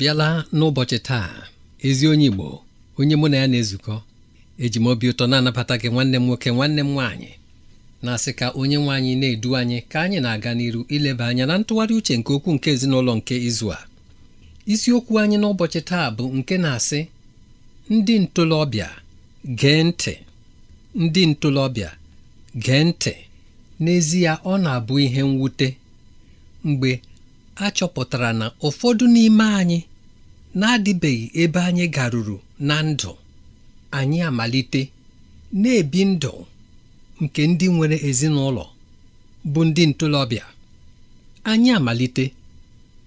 abịala n'ụbọchị taa ezi onye Igbo onye mụ na ya na-ezukọ eji m obi ụtọ na-anabata gị nwanne m nwoke nwanne m nwaanyị na-asị ka onye nwaanyị anyị na-edu anyị ka anyị na-aga n'iru ileba anya na ntụgharị uche nke okwu nke ezinụlọ nke izu a isiokwu anyị n'ụbọchị taa bụ nke na-asị ndị ntolọbịa gee ntị ndị ntolọbịa gee ntị n'ezie ọ na-abụ ihe mwute mgbe a chọpụtara na ụfọdụ n'ime anyị na-adịbeghị ebe anyị garuru na ndụ anyị amalite na-ebi ndụ nke ndị nwere ezinụlọ bụ ndị ntolobịa anyị amalite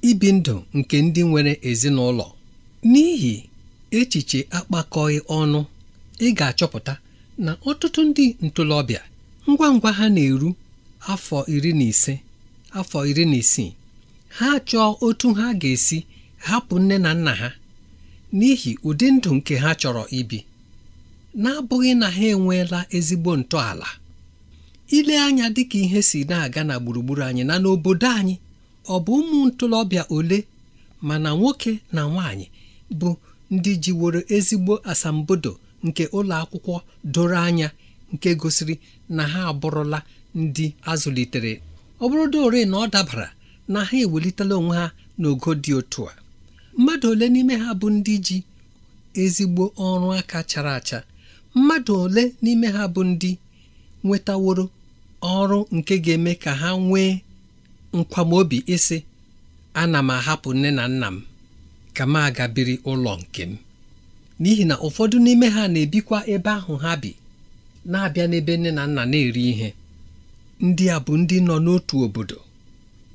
ibi ndụ nke ndị nwere ezinụlọ n'ihi echiche akpakọghị ọnụ ị ga-achọpụta na ọtụtụ ndị ntolobịa ngwa ngwa ha na-eru afọ iri na ise afọ iri na isii ha chọọ otu ha ga-esi hapụ nne na nna ha n'ihi ụdị ndụ nke ha chọrọ ibi n'abụghị na ha enweela ezigbo ntọala ile anya dịka ihe si na-aga na gburugburu anyị na n'obodo anyị ọ bụ ụmụ ntolobịa ole mana nwoke na nwanyị bụ ndị jiworo ezigbo asambodo nke ụlọ akwụkwọ doro anya nke gosiri na ha abụrụla ndị azụlitere ọ bụrụ na ọ dabara na ha ewelitela onwe ha n'ogo dị otu a mmadụ ole n'ime ha bụ ndị ji ezigbo ọrụ aka chara acha mmadụ ole n'ime ha bụ ndị nwetaworo ọrụ nke ga-eme ka ha nwee nkwamobi ịsị ana m ahapụ nne na nna m ka m aga ụlọ nke m n'ihi na ụfọdụ n'ime ha na-ebikwa ebe ahụ ha bi na-abịa n'ebe nne na nna na-eri ihe ndị a bụ ndị nọ n'otu obodo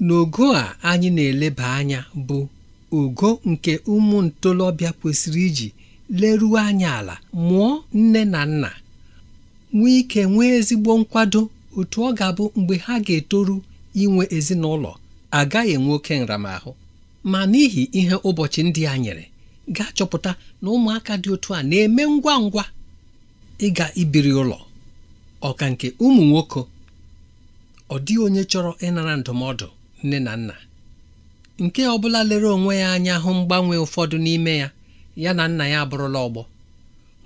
n'ogo a anyị na-eleba anya bụ ugo nke ụmụ ntolobịa kwesịrị iji leruo anya ala mụọ nne na nna nwee ike nwee ezigbo nkwado otu ọ ga-abụ mgbe ha ga-etoru inwe ezinụlọ agaghị enwe oke nramahụ ma n'ihi ihe ụbọchị ndị a nyere gaa chọpụta na ụmụaka dị otu a na-eme ngwa ngwa ịga ibiri ụlọ ọka nke ụmụ nwoke ọ dịghị onye chọrọ ịnara ndụmọdụ nne na nna nke ọ bụla lere onwe ya anya hụ mgbanwe ụfọdụ n'ime ya ya na nna ya abụrụla ọgbọ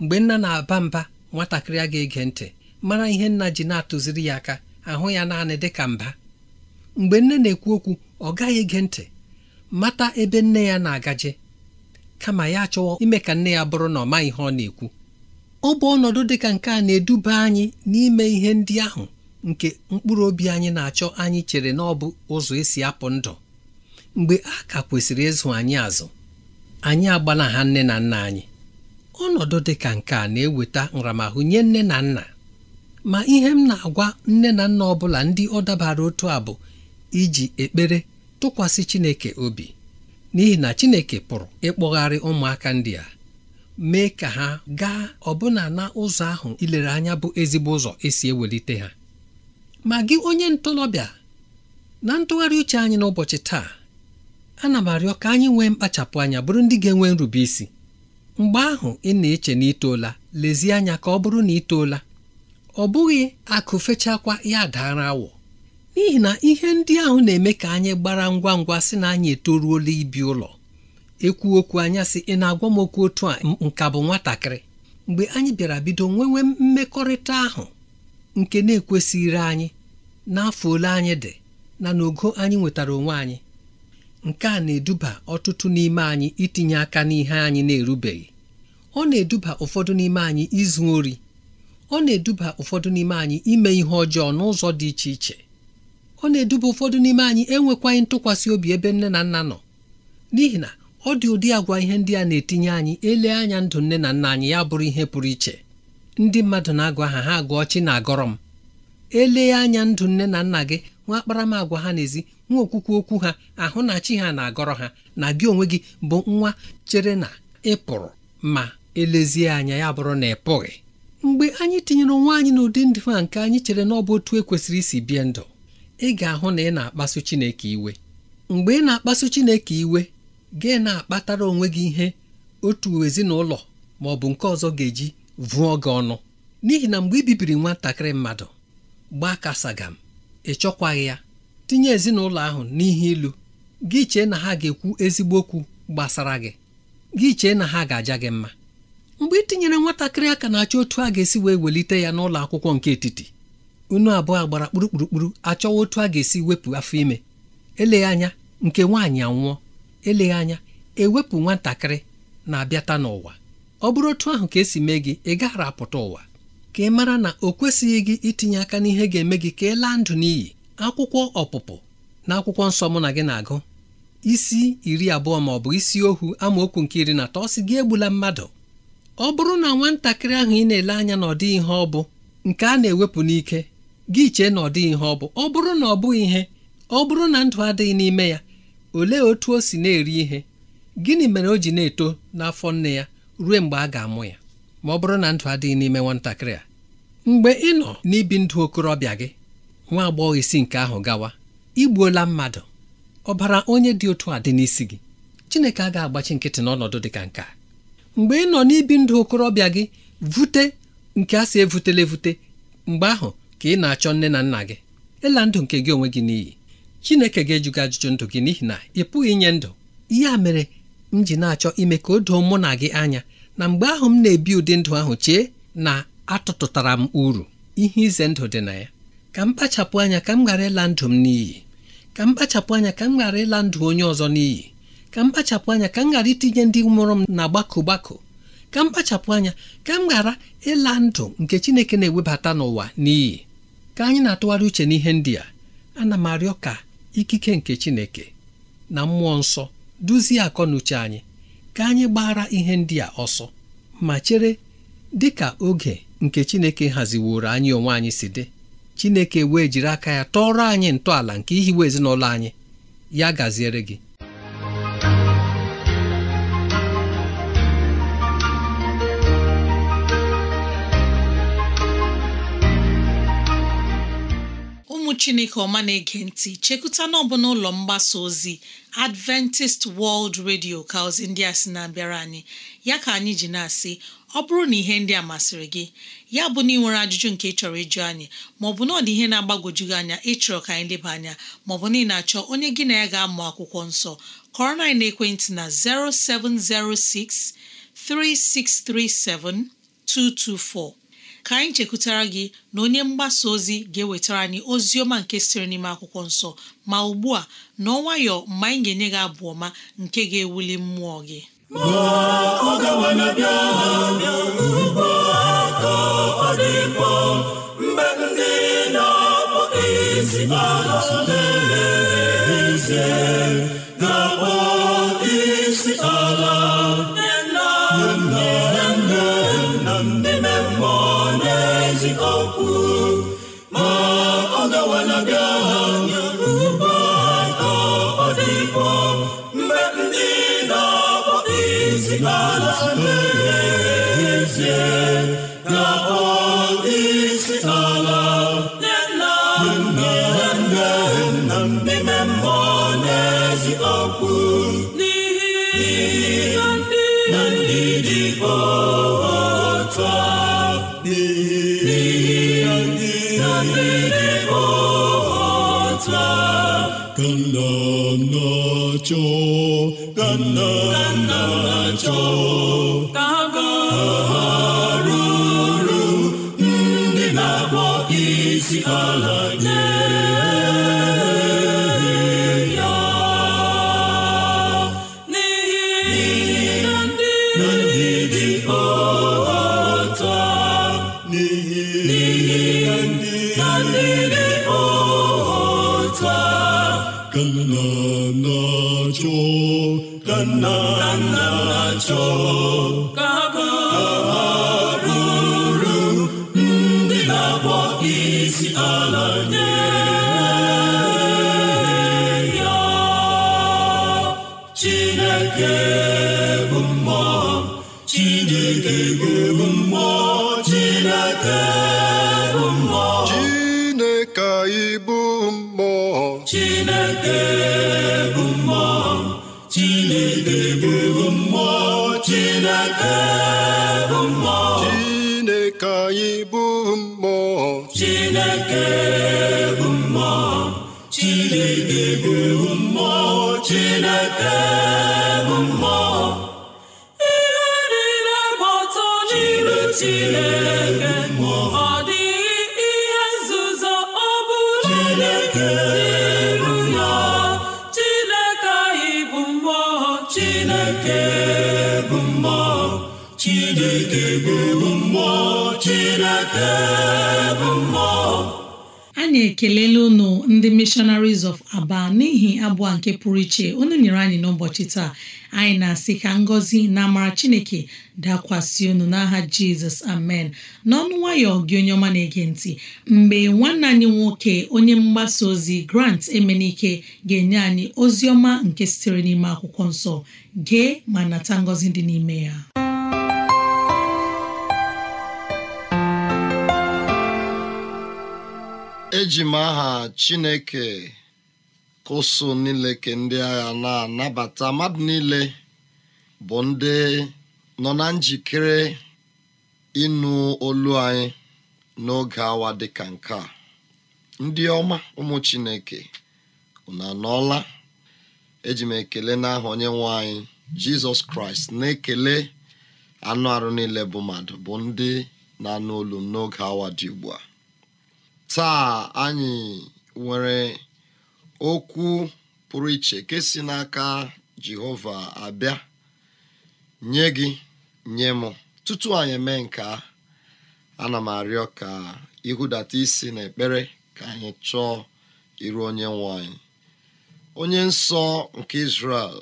mgbe nna na-aba mba nwatakịrị a ga-ege ntị mara ihe nna ji na-atụziri ya aka ahụ ya naanị dị ka mba mgbe nne na-ekwu okwu ọ gaghị ege ntị mata ebe nne ya na-agaje kama ya chọwa ime ka nne ya bụrụ na ọ maghị ihe ọ na-ekwu ọ bụ ọnọdụ dị ka nke a na-eduba anyị n'ime ihe ndị ahụ nke mkpụrụ obi anyị na-achọ anyị chere na ọ bụ ụzọ esi apụ ndụ mgbe a ka kwesịrị ịzụ anyị azụ anyị agbala ha nne na nna anyị ọnọdụ dị ka nke a na-eweta nramahụ nye nne na nna ma ihe m na-agwa nne na nna ọ bụla ndị ọ dabara otu a bụ iji ekpere tụkwasị Chineke obi n'ihi na Chineke pụrụ ịkpọgharị ụmụaka ndị a mee ka ha gaa ọbụna na ụzọ ahụ ilere anya bụ ezigbo ụzọ esi ewelite ha ma gị onye ntorobịa na ntụgharị uche anyị n'ụbọchị taa ana m arịọ ka anyị nwee mkpachapụ anya bụrụ ndị ga-enwe nrube isi mgbe ahụ ị na-eche na itoola lezie anya ka ọ bụrụ na itoola ọ bụghị akụ fechakwa ya daara awọ n'ihi na ihe ndị ahụ na-eme ka anyị gbara ngwa ngwa sị na anyị etoruola ibi ụlọ ekwu okwu anya sị ị na-agwa m okwu otu a nka bụ nwatakịrị mgbe anyị bịara bido nwewe mmekọrịta ahụ nke na-ekwesịghịrị anyị n'afọ ole anyị dị na n'ogo anyị nwetara onwe anyị nke a na-eduba ọtụtụ n'ime anyị itinye aka n'ihe anyị na-erubeghị ọ na-eduba ụfọdụ n'ime anyị izu ori ọ na-eduba ụfọdụ n'ime anyị ime ihe ọjọọ n'ụzọ dị iche iche ọ na-eduba ụfọdụ n'ime anyị enwekwaghị ntụkwasị obi ebe nne na nna nọ n'ihi na ọ dị ụdị agwa ihe ndị a na-etinye anyị ele anya ndụ nne na nna anyị ya bụrụ ihe pụrụ iche ndị mmadụ na-agwa ha ha agụọ chi na-agọrọ m elee anya ndụ nne na nna gị nwa akparamagwa ha n'ezi nwa okwukwe okwu ha ahụ na chi ha na-agọrọ ha na gị onwe gị bụ nwa chere na ị pụrụ ma elezie anya ya bụrụ na ị pụghị mgbe anyị tinyere nwa anyị n'ụdị ndụ a nke anyị chere na ọ bụ otu ekwesịrị isi bie ndụ ị ga-ahụ na ị na-akpasu Chineke iwe mgbe ị na-akpasu Chineke iwe gị na-akpatara onwe gị ihe otu ezinụlọ ma ọ bụ nke ọzọ ga-eji vụọ gị ọnụ n'ihi na mgbe ị bibiri nwatakịrị mmadụ gbaa kasagam ị chọkwaghị ya tinye ezinụlọ ahụ n'ihe ilu gị chee na ha ga-ekwu ezigbo okwu gbasara gị gị chee na ha ga-aja gị mma mgbe ị tinyere nwatakịrị aka na-achọ otu a ga-esi wee welite ya n'ụlọ akwụkwọ nke etiti unu abụọ gbara kpurukpurukpuru achọwa otu a ga-esi wepụ afọ ime eleghị anya nke nwaanyị anwụọ eleghị anya ewepụ nwatakịrị na-abịata n'ụwa ọ bụrụ otu ahụ ka esi mee gị ị gaghara apụta ụwa ka ị mara na o kwesịghị gị itinye aka n'ihe ga-eme gị ka ị laa ndụ n'iyi akwụkwọ ọpụpụ na akwụkwọ nsọ mụ na gị na-agụ isi iri abụọ ma ọ bụ isi ohu amaokwu nke iri na atọ sị gị egbula mmadụ ọ bụrụ na nwatakịrị ahụ ị na-ele anya na ọ dịghị ihe ọ bụ nke a na-ewepụ n'ike gị chee na ọ dịghị ihe ọ bụ ọ bụrụ na ọ bụghị ihe ọ bụrụ na ndụ adịghị n'ime ya olee otu o si na-eri ihe gịnị mere o ji na-eto n'afọ nne ya ruo mgbe a ga-amụ ya ma ọ bụrụ na ndụ adịghị n'ime nwatakịrị a mgbe ị nọ n'ibi ndụ okorobịa gị nwa agbọghọ isi nke ahụ gawa igbuola mmadụ ọbara onye dị otu a dị n'isi gị Chineke a ga-agbachi nkịtị n'ọnọdụ dị ka nke a. mgbe ị nọ n'ibi ndụ okorobịa gị vute nke a si evutela evute mgbe ahụ ka ị na-achọ nne na nna gị ịla ndụ nke gị onwe gị n'iyi Chineke ga-ejuga ajụjụ ndụ gị n'ihi na ị pụghị inye ndụ ihe a mere m ji na-achọ ime ka o doo mụ na gị anya na mgbe ahụ m na-ebi ụdị ndụ ahụ chee na atụtụtara m uru ihe ize ndụ dị na ya ka m kpachapụ anya ka m ghara ịla ndụ m n'iyi ka m kpachapụ anya ka m ghara ịla ndụ onye ọzọ n'iyi ka m kpachapụ anya ka m ghara itinye ndị mụrụ m na gbakọ gbakọ ka m kpachapụ anya ka m ghara ịla ndụ nke Chineke na-ewebata n'ụwa n'iyi ka anyị na-atụgharị uche n'ihe ndị a ana m arịọ ka ikike nke Chineke na mmụọ nsọ duzie akọ na uche anyị ka anyị gbara ihe ndị a ọsọ ma chere dị ka oge nke Chineke haziworo anyị onwe anyị si dị Chineke wee jiri aka ya tọrọ anyị ntọala nke ihiwe ezinụlọ anyị ya gaziere gị chineke ọma na-ege ntị chekụta n'ọbụ n'ụlọ mgbasa ozi adventist world radio ka ozi ndị a sị na-abịara anyị ya ka anyị ji na-asị ọ bụrụ na ihe ndị a masịrị gị ya bụ na ị nwere ajụjụ nke ị chọrọ ịjụ anyị maọbụ na ọ dị ihe na-agbagwoju gị anya ịchọrọ ka anyị leba anya maọbụ na ị na-achọ onye gị na ya ga-amụ akwụkwọ nsọ kọrọ na ekwentị na 0706 3637 224 ka anyị chekwutara gị na onye mgbasa ozi ga-ewetara anyị ozi ọma nke siri n'ime akwụkwọ nsọ ma ugbu a na nwayọ mgbe anyị ga-enye gị abụ ọma nke ga-ewuli mmụọ gị cho gan na na cho ta ga ru ru ndị na-akpọ isi ala nye ka na nna achọ again. ekelela unu ndị missionaries of aba n'ihi abụọ nke pụrụ iche unu nyere anyị n'ụbọchị taa anyị na-asị ka ngọzi na amara chineke dakwasị unu n'aha jizọs amen n'ọnụ nwayọọ gị onye ọma na-ege ntị mgbe nwanne anyị nwoke onye mgbasa ozi grant emenike ga-enye anyị ozi ọma nke sitere n'ime akwụkwọ nsọ gee ma nata ngọzi dị n'ime ya eji m aha Chineke kụsụ niile ke ndị agha na-anabata mmadụ niile bụ ndị nọ na njikere ịnụ olu anyị n'oge awa dịka nke a ndị ọma ụmụ Chineke unu anọọla eji m ekele n'aha onye nwe anyị Jizọs Kraịst na-ekele anụ arụ niile bụ mmadụ bụ ndị na-anụ olu n'oge awa dị ugbu a taa anyị nwere okwu pụrụ iche nke si n'aka jehova abịa nye gị nye m tutu anyị mee nke a ana m arịọ ka ịhụdata isi n'ekpere ka anyị chọọ iru onye nwanyị. onye nsọ nke israel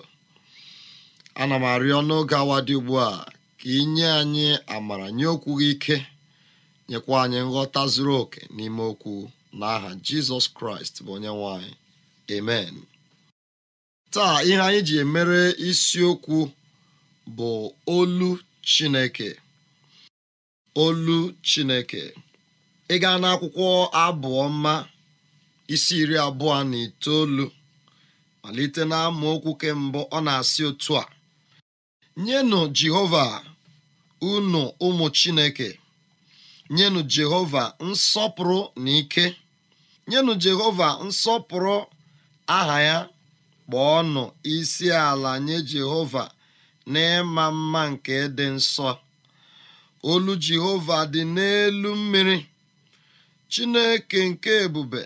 ana m arịọ n'oge awa dị ugbu a ka ị anyị amara nye okwu gị ike nyekwa anyị nghọta zuru oke n'ime okwu n'aha jizọs kraịst bụ onye nwanyị. amen taa ihe anyị ji emere isiokwu bụ olu chineke olu chineke ị gaa n'akwụkwọ mma isi iri abụọ na itoolu malite na amaokwu mbụ ọ na-asị otu a nyenụ jehova unu ụmụ chineke nyenụ jehova nsọpụrụ na ike nyenụ jehova nsọpụrụ aha ya kpọọnụ isi ala nye jehova n'ịma mma nke dị nsọ olu jehova dị n'elu mmiri chineke nke ebube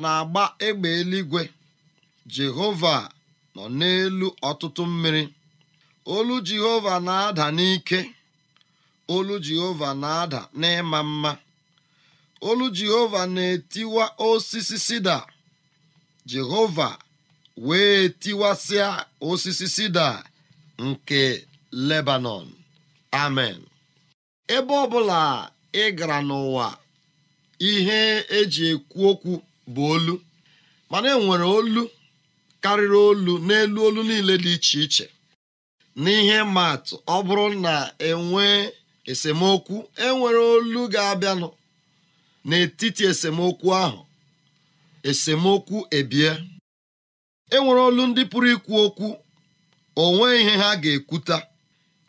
na-agba ịgba eluigwe jehova nọ n'elu ọtụtụ mmiri olu jehova na-ada n'ike olu jehova na-ada n'ịma mma olu jehova na-etiwa osisi sida jehova wee tiwasịa osisi sida nke lebanon amen ebe ọ bụla ị gara n'ụwa ihe eji ekwu okwu bụ olu mana enwere olu karịrị olu n'elu olu niile dị iche iche n'ihe maatụ ọ bụrụ na enwee esemokwu enwere olu ga-abịanụ n'etiti esemokwu ahụ esemokwu ebie enwere olu ndị pụrụ ikwu okwu onwe ihe ha ga-ekwuta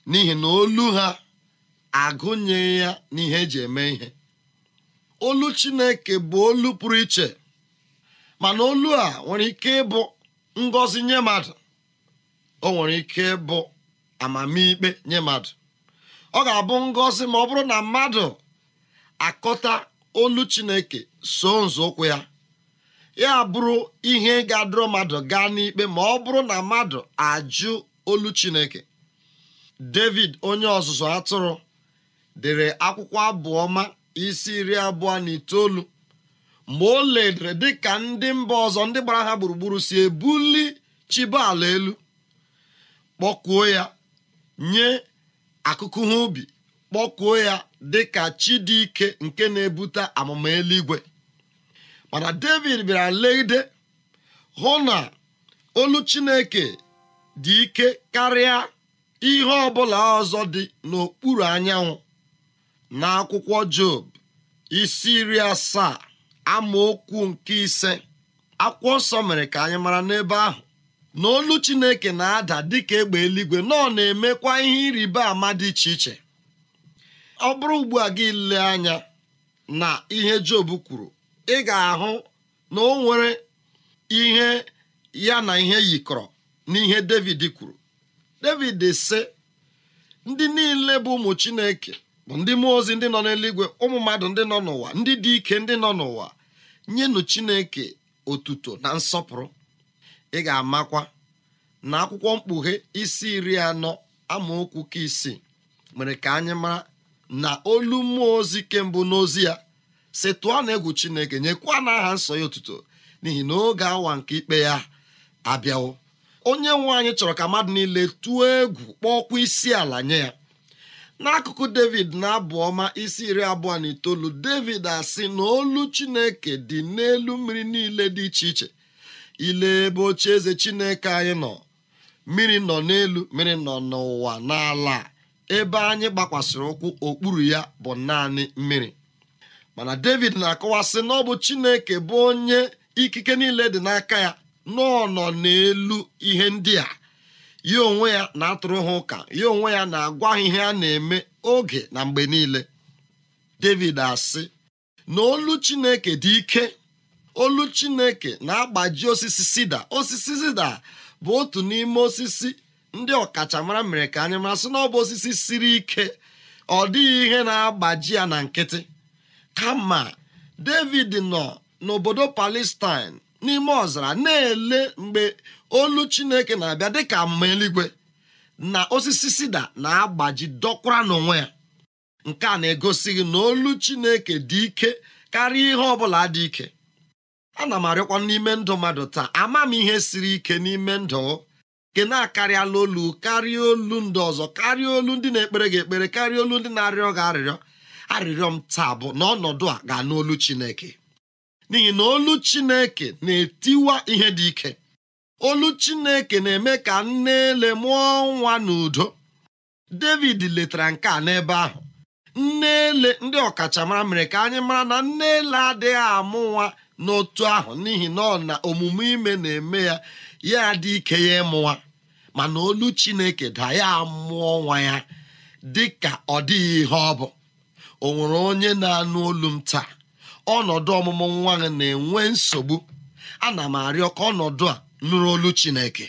n'ihi na olu ha agụnyeghị ya n'ihe eji eme ihe olu Chineke bụ olu pụrụ iche mana olu a nwere ike ịbụ ngọzi nye mmadụ o nwere ike ịbụ amamikpe nye mmadụ ọ ga-abụ ngọzi ma ọ bụrụ na mmadụ akọta olu chineke so nzọụkwụ ya ya bụrụ ihe ga-adọrọ mmadụ gaa n'ikpe ma ọ bụrụ na mmadụ ajụ olu chineke david onye ọzụzụ atụrụ dere akwụkwọ abụọ abụọma isi iri abụọ na itoolu mgbe o ledere dịka ndị mba ọzọ ndị gbara ha gburugburu si ebuli chibo elu kpọkuo ya nye akụkụ ha ubi kpọkuo ya dịka chi dị ike nke na-ebute amụma eluigwe mana david bịara legide hụ na olu chineke dị ike karịa ihe ọbụla ọzọ dị n'okpuru anyanwụ na akwụkwọ job isi iri asaa amaokwu nke ise akwụkwọ nsọ mere ka anyị mara n'ebe ahụ na olu chineke na-ada dịka egbe eluigwe nọ na-emekwa ihe ịrịba ama dị iche iche ọ bụrụ ugbu a gị ile anya na ihe job kwuru ị ga-ahụ na o nwere ihe ya na ihe yikọrọ ihe david kwuru david si. ndị niile bụ ụmụ chineke bụ ndị mmụọ ozi ndị nọ n'eluigwe ụmụ mmadụ ndị nọ n'ụwa ndị dị ike ndị nọ n'ụwa nyenụ chineke otuto na nsọpụrụ ị ga-amakwa na akwụkwọ mkpughe isi iri anọ amaokwu ka isii mere ka anyị mara na olu mmụọ ozi kembụ n'ozi ya si tụọ na egwu chineke nyekwa na aha nsọ ya otuto n'ihi na oge awa nke ikpe ya abịawo onye nwe anyị chọrọ ka mmadụ niile tụọ egwu kpọọkwa isi ala nye ya n'akụkụ david na abụ ọma isi iri abụọ na itoolu david asị na olu chineke dị n'elu mmiri niile dị iche iche ile ebe eze chineke anyị nọ mmiri nọ n'elu mmiri nọ n'ụwa n'ala ebe anyị gbakwasịrị ụkwụ okpuru ya bụ naanị mmiri mana david na-akọwasị na ọ bụ chineke bụ onye ikike niile dị n'aka ya nọ nọ n'elu ihe ndị a ya onwe ya na-atụrụ ha ụka ya onwe ya na-agwa ha ihe a na-eme oge na mgbe niile david asị na olu chineke dị ike olu chineke na-agbaji osisi sida osisi sida bụ otu n'ime osisi ndị ọkachamara mere ka anyị mara sị na ọ bụ osisi siri ike ọ dịghị ihe na-agbaji ya na nkịtị kama david nọ n'obodo palestine n'ime ọzara na-ele mgbe olu chineke na-abịa dịka mma eluigwe na osisi sida na-agbaji dọkwara n'onwe ya nke a na-egosighị na olu chineke dị ike karịa ihe ọ bụla dị ike ana m arịọkwa n'ime ndụ mmadụ taa ama m ihe siri ike n'ime ndụ nke na-akarịala olu karịa olu ndị ọzọ karịa olu ndị na-ekpere gị ekpere karịa olu ndị na-arịọ gị arịrịọ arịrịọ m taa bụ na ọnọdụ a ga-anụ olu Chineke n'ihi na olu Chineke na-etiwa ihe dị ike olu Chineke na-eme ka nne ele mụọ nwa n'udo David letara nke a n'ebe ahụ nne ele ndị ọkachamara mere ka anyị mara na nne ele adịghị amụ nwa n'otu ahụ n'ihi na ọ na omume ime na-eme ya ya dị ike ya ịmụwa mana olu chineke da ya mụọ nwa ya dị ka ọ dịghị ihe ọ bụ o nwere onye na-anụ olu m taa ọnọdụ ọmụmụ nwa gị na-enwe nsogbu ana m arịọ ka ọnọdụ a nụrụ olu chineke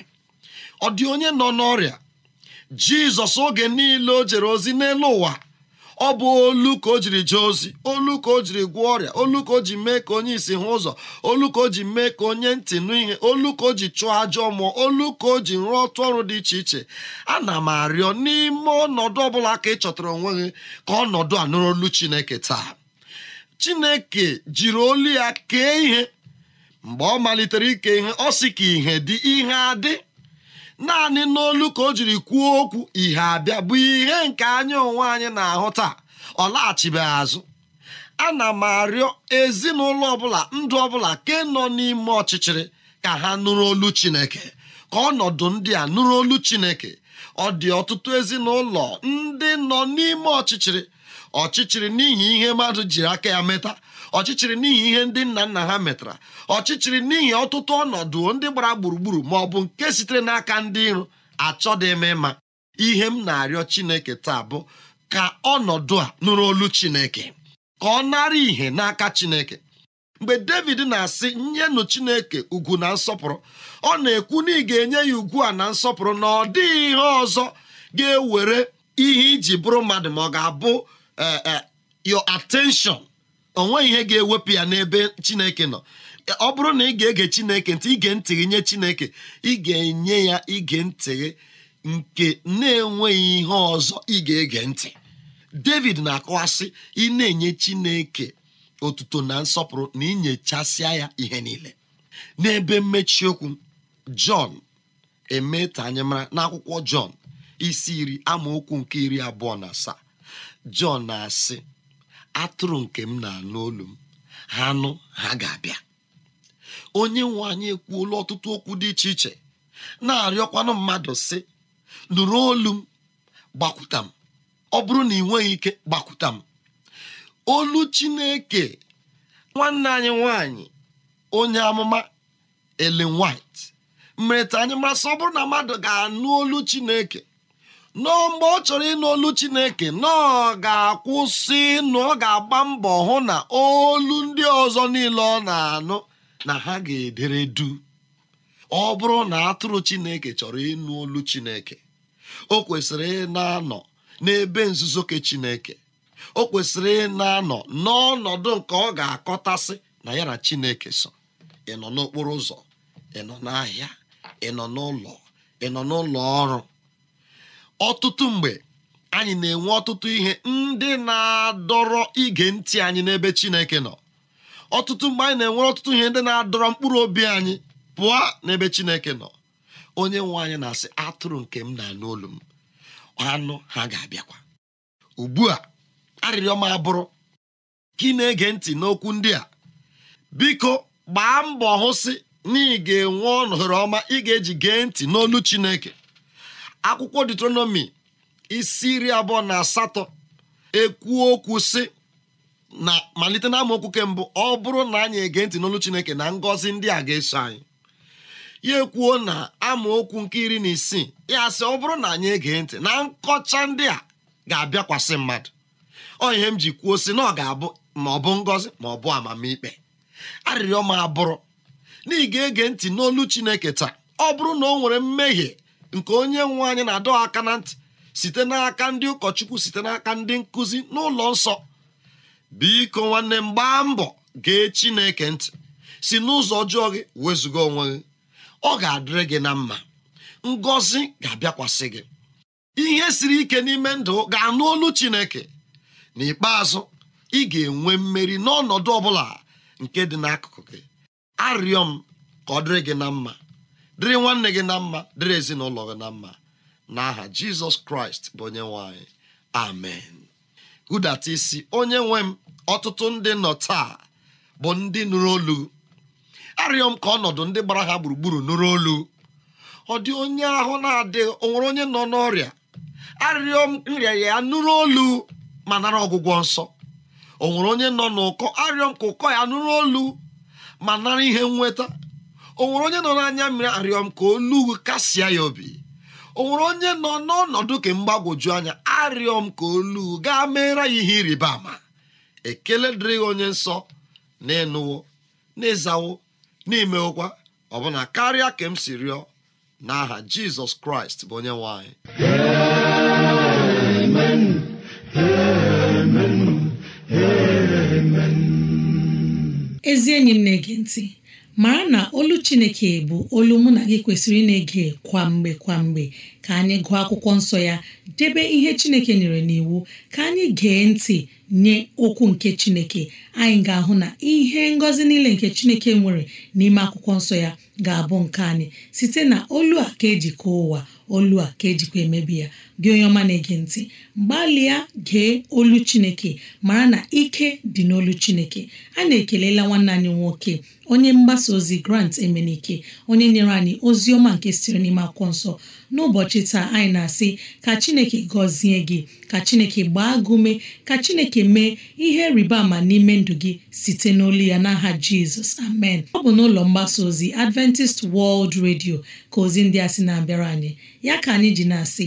ọ dị onye nọ n'ọrịa jizọs oge niile o jere ozi n'elu ụwa ọ bụ olu ka o jiri jee ozi olu ka o jiri gwọọ ọrịa olu ka o ji mee ka onye isi hụ ụzọ olu ka o ji mee ka onye ntị nụ ihe olu ka o ji chụọ ajọ mmụọ olu ka o ji rụọ ọtụ ọrụ dị iche iche ana m arịọ n'ime ọnọdụ ọbụla ka ị chọtara onwe gị ka ọnọdụ a nụrụ olu Chineke taa Chineke jiri olu ya kee ihe mgbe ọ malitere ike ihe ọ sị ka ihe dị ihe adị naanị n'olu ka o jiri kwuo okwu ihe abịa bụ ihe nke anyị onwe anyị na-ahụ taa ọ laghachibeghị azụ ana m arịọ ezinụlọ ọbụla ndụ ọbụla ị e nọ n'ime ọchịchịrị ka ha nụrụ olu chineke ka ọnọdụ ndị a nụrụ olu chineke ọ dị ọtụtụ ezinụlọ ndị nọ n'ime ọchịchịrị ọchịchịrị n'ihi ihe mmadụ jiri aka ya meta ọchịchịrị n'ihi ihe ndị nna nna ha metara ọchịchịrị n'ihi ọtụtụ ọnọdụ ndị gbara gburugburu ma ọ bụ nke sitere n'aka ndị iro achọdị m ịma ihe m na-arịọ Chineke taa bụ ka ọnọdụ a nụrụ olu Chineke ka ọ nara ìhè n'aka Chineke mgbe David na-asị nyenụ Chineke ugwu na nsọpụrụ ọ na-ekwu na ị ga-enye ya ugwu a na nsọpụrụ na ọ dịghị ihe ọzọ ga-ewere ihe iji bụrụ mmadụ ma ọ ga-abụ eh, eh, your attention o nweghị ihe ga-ewepụ ya n'ebe chineke nọ ọ bụrụ na ị ga-ege chineke ntị ige ntị nye chineke ị ga-enye ya ige ntị nke na-enweghị ihe ọzọ ị ga-ege ntị david na-akọwasị ị na-enye chineke otuto na nsọpụrụ na inyechasịa ya ihe niile n'ebe mmechi okwu jọn emeta anyị mara n'akwụkwọ jọn isi iri amaokwu nke iri abụọ na asaa jọn na-asị atụrụ nke m na-anụ olu m ha nụ ha ga-abịa onye nwe anyị ekwuola ọtụtụ okwu dị iche iche na-arịọkwanụ mmadụ sị nụrụ olu m gbakwuta m ọ bụrụ na ị nweghị ike gbakwuta m olu Chineke nwanne anyị nwanyị onye amụma Ellen White mere ta anyị masị ọ bụrụ na mmadụ ga-anụ olu Chineke nọọ mgbe ọ chọrọ ịnụ olu chineke nọọ ga-akwụsị nụ ọ ga-agba mbọ hụ na olu ndị ọzọ niile ọ na-anụ na ha ga-edere du ọ bụrụ na atụrụ chineke chọrọ ịnụ olu chineke o kwesịrị ị na-anọ n'ebe nzuzo ke chineke o kwesịrị ị na-anọ n'ọnọdụ nke ọ ga-akọtasị na ya na chineke so ị nọ n'okporo ụzọ ị nọ n'ahịa ị nọ n'ụlọ ị nọ n'ụlọ ọrụ ọtụtụ mgbe anyị na-enwe ọtụtụ ihe ndị na-adọrọ ige ntị anyị n'ebe Chineke nọ ọtụtụ mgbe anyị na-enwe ọtụtụ ihe ndị na-adọrọ mkpụrụ obi anyị pụọ n'ebe Chineke nọ onye nwe anyị na-asị atụrụ nke m na-anụ olu m anụ ha ga-abịakwa ugbu a arịrịọ m abụrụ ka ị na-ege ntị n'okwu ndị a biko gbaa mbọ hụsị na ị ga-enwe ọnọdụ ọma ị ga-eji gee ntị n'olu Chineke akwụkwọ Deuteronomy isi iri abụọ na asatọ ekwuo okwu sị na malite na amaokwu ke mbụ ọ bụrụ na anyị ege ntị n'olu Chineke na ngọzi ndị a ga-eso anyị ya ekwuo na amaokwu nke iri na isii ya sị ọ bụrụ na anyị ege ntị na nkọcha ndị a ga-abịakwasị mmadụ ọ ihe m ji kwuo sị na ọ ga-abụ ma ọ bụ ngọzi ma ọ bụ amamikpe arịrịọ m abụrụ na ị ga-ege ntị n'olu Chineke taa ọ bụrụ na o nwere mmehie nke onye nwe anyị na-adọ aka na ntị site n'aka ndị ụkọchukwu site n'aka ndị nkụzi n'ụlọ nsọ biko nwanne m gbaa mbọ gee Chineke ntị si n'ụzọ ọjọọ gị wezụga onwe gị ọ ga-adịrị gị na mma ngọzi ga-abịakwasị gị ihe siri ike n'ime ndụ ga-anụ olu Chineke n'ikpeazụ ị ga-enwe mmeri n'ọnọdụ ọ bụla nke dị n'akụkụ gị arịọ m ka ọ dịrị gị na mma dịrị nwanne gị na mma dịrị ezinụlọ gị na mma n'aha jizọs kraịst bụ onye nwanyị. amen hudata isi onye nwe m ọtụtụ ndị nọ taa bụ ndị nụrụ olu arịọ m ka ọnọdụ ndị gbara ha gburugburu nụrụ olu ọ dị onye ahụ na adị ọ nwere onye nọ n'ọrịa arịrịọ m nrịa ya nụrụ olu ma nara ọgwụgwọ nsọ o nwere onye nọ n'ụkọ arịọ m ka ụkọ ya nụrụ olu ma nara ihe nweta o nwere onye nọ n'anya mmiri arịọ m ka olu kasịa ya obi o nwere onye nọ n'ọnọdụ ka mgbagwoju anya arịọ m ka olu gaa meere ya ihe ịrịba ama ekele dịrị onye nsọ na ịnụwo na ịzawo na imewokwa ọbụna karịa ka m si rịọ n'aha jizọs kraịst bụ onye nwanyị. ezi enyi m na-ege ntị mara na olu chineke bụ olu mụ na gị kwesịrị ị na-ege kwa mgbe ka anyị gụọ akwụkwọ nsọ ya debe ihe chineke nyere n'iwu ka anyị gee ntị nye okwu nke chineke anyị ga-ahụ na ihe ngọzi niile nke chineke nwere n'ime akwụkwọ nsọ ya ga-abụ nke anyị site na olu a ka e ụwa olu a ka e emebi ya gị onye ọma na-ege ntị gbalịa gee olu chineke mara na ike dị n'olu chineke a na-ekelela nwanne anyị nwoke onye mgbasa ozi grant emenike onye nyere anyị ozi ọma nke sitere n'ime akwụkwọ nsọ n'ụbọchị taa anyị na-asị ka chineke gọzie gị ka chineke gbaa gị ka chineke mee ihe rịba ama n'ime ndụ gị site n'olu ya n'aha jizọs amen ọ bụ n'ụlọ mgbasa ozi adventist wọld redio ka ozi ndị a sị na-abịara anyị ya ka anyị ji na-asị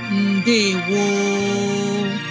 woo!